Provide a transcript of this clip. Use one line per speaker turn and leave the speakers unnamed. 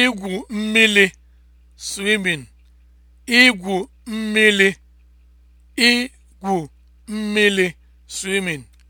igwu mmili (swimming), (swimming)